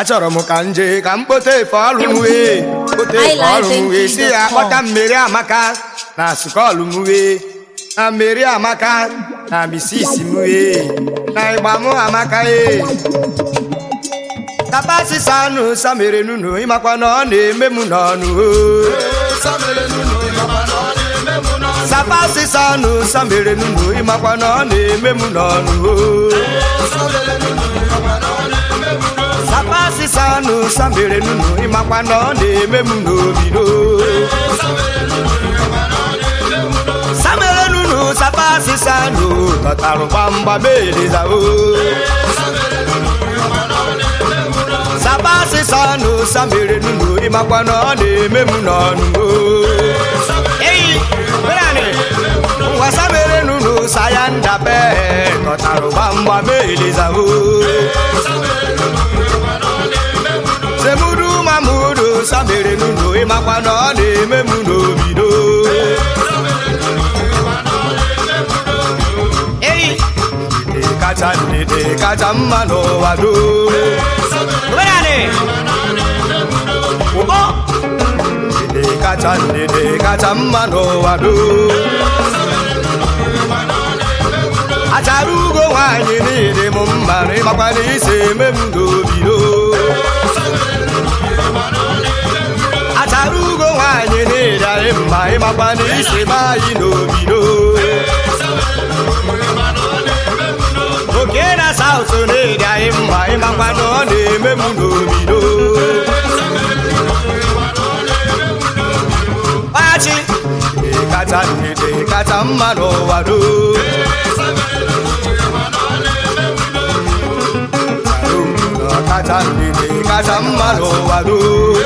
achọrọ m ka nje ka m kpote efe ọrụ kpote efe ọrụ si ya kpọta mmeri amaka na sukọlụ m na mmeri amaka na misisi m na ịgba m amaka ee tapa sisa anụ samere nunu ịmakwa na ọ na-eme m n'ọnụ sapa sisa anụ samere nunu ịmakwa na ọ na-eme m n'ọnụ papa sịsa anụ samere nunu ịmakwa na ọ na-eme m n'obido samere nunu sapa sịsa anụ tọtara gbamgbamedezao sapa sịsa anụ samere nunu ịmakwa na ọ na-eme m n'ọnụmo ngwa samere nunu saya ndabe tọtara gbamgbamedezao sa mere n'ụlọ ịmakwa e na ọ na-eme m n'obido kacha ndidi kacha mma n'ụwa do ndidi kacha ndidi kacha mma n'ụwa doo. achara ugo nwaanyị niile m mma ịmakwa na isi eme m n'obido nara ugo nwaanyị na-eri anyị mma ịmakwa na isi be anyị n'obido oke na ọ na-eri mma ịmakwa na ọ na-eme m n'obido pachi ịkata ndidi ịkata mma n'ụwa doo kacha ndidi kacha mma n'ụwa doo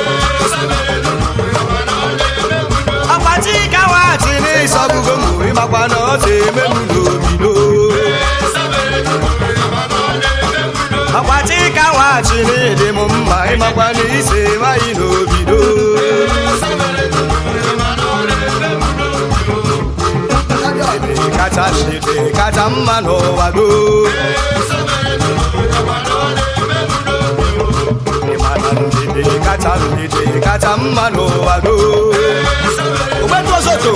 ọbụgo mgbe ịmakwa na ọ dị eme m n'obido akwati ka n'ịdị m mma ịmakwa na ise nwanyị n'obido kacha dị kacha mma n'ụwa goo kacha mma n'ụwa ọzọ too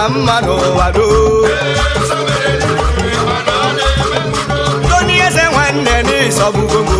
ka mma n'ụwa doo Tony Eze nwanne n'ịsọgbugo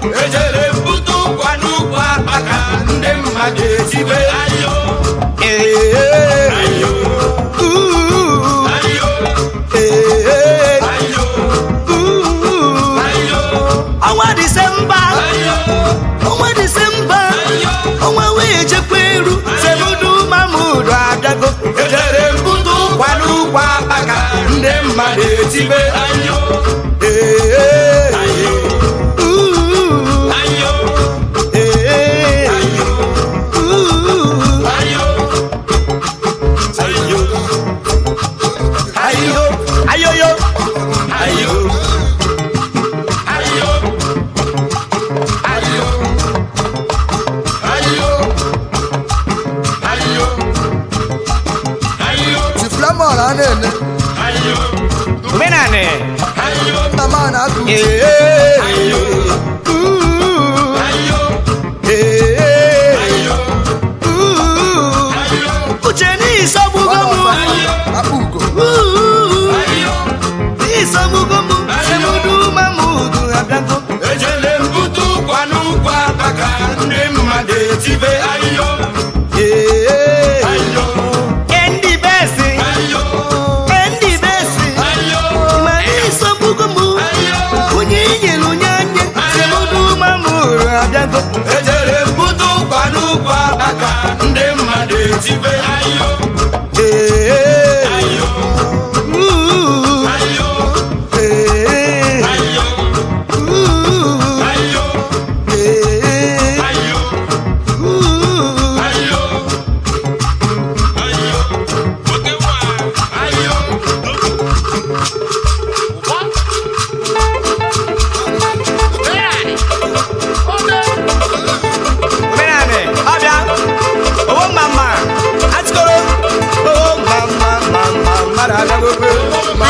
ejere mbute ụkwa n'ụkwa akpa ka ndị mmadụ ejibe ọnwa disemba ọnwa disemba ọnwa wee chekwa iru semudu mamudu agago ejere mbute ụkwa n'ụkwa akpa ka ndị mmadụ etibe ibe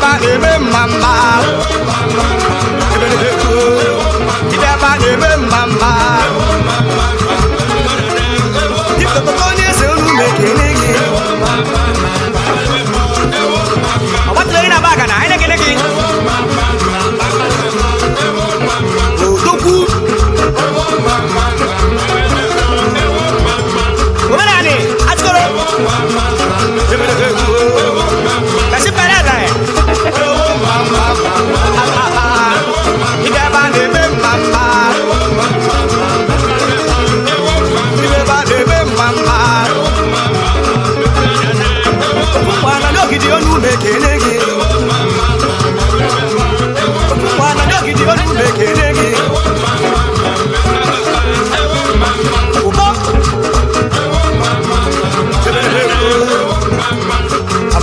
na-eme ebe a na ebe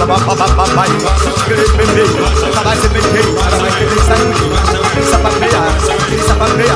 papai Bebê, papai se peguei Papai que tem sangue Pisa papia, pisa papia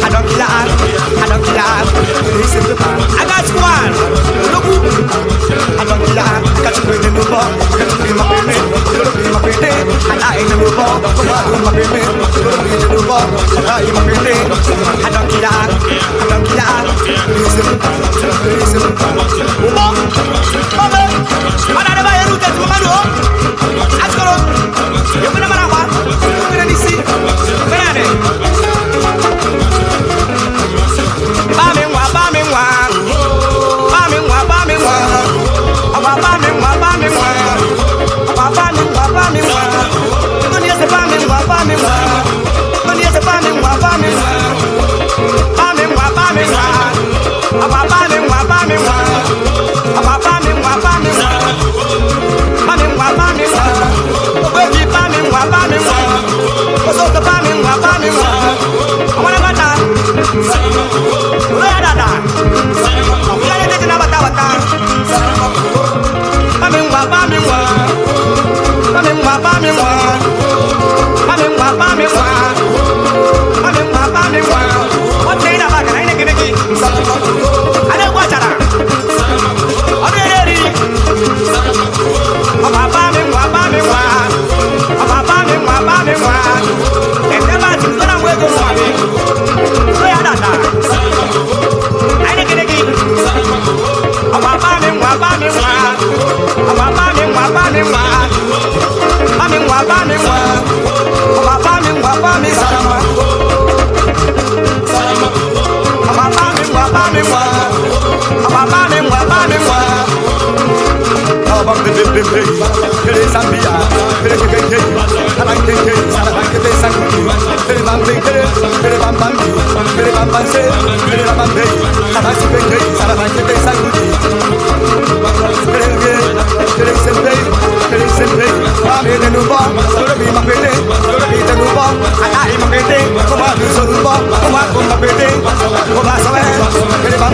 I don't kill a hard, I don't kill a Listen to me, I got one. Look I don't a you the you my my And I the Come on, my the And I my I don't kill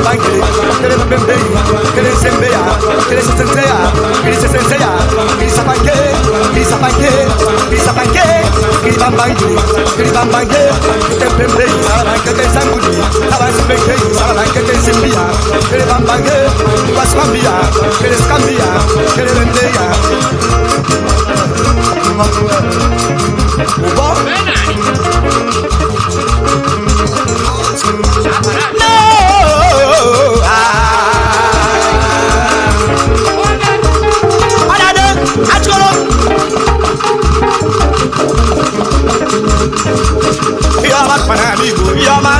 bangere ya mbembei kereza mbeya kereza senseya kereza senseya kereza bange kereza bange kereza bange kereza bange kereza bange tembembei sabange tenzanguli sabange mbengei sabange tenzimbiya kere bange kere kereza ya kereza mbeya Ubo? Benani! ọma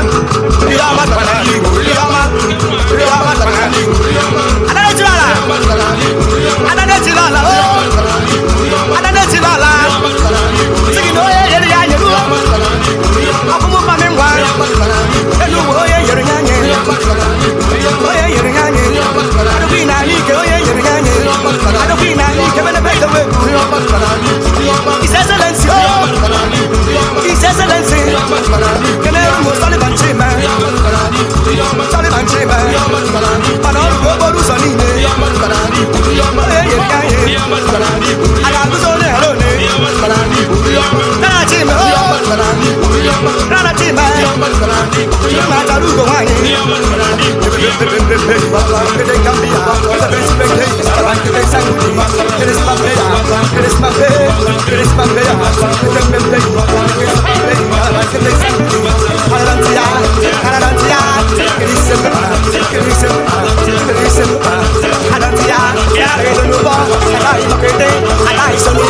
ihe ọma tara n'ala Can you sit? Can you sit? ya ya re sonu bo ala yi mo kete ala yi sonu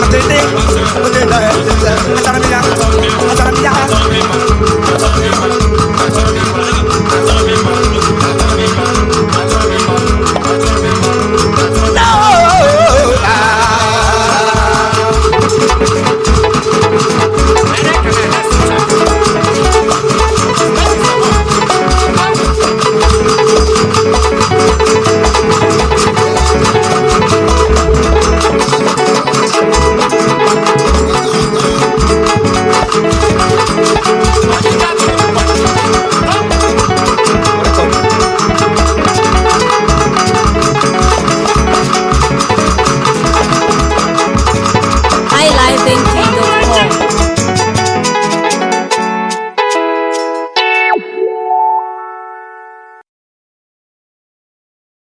What they did, what they done, what they done, what they done,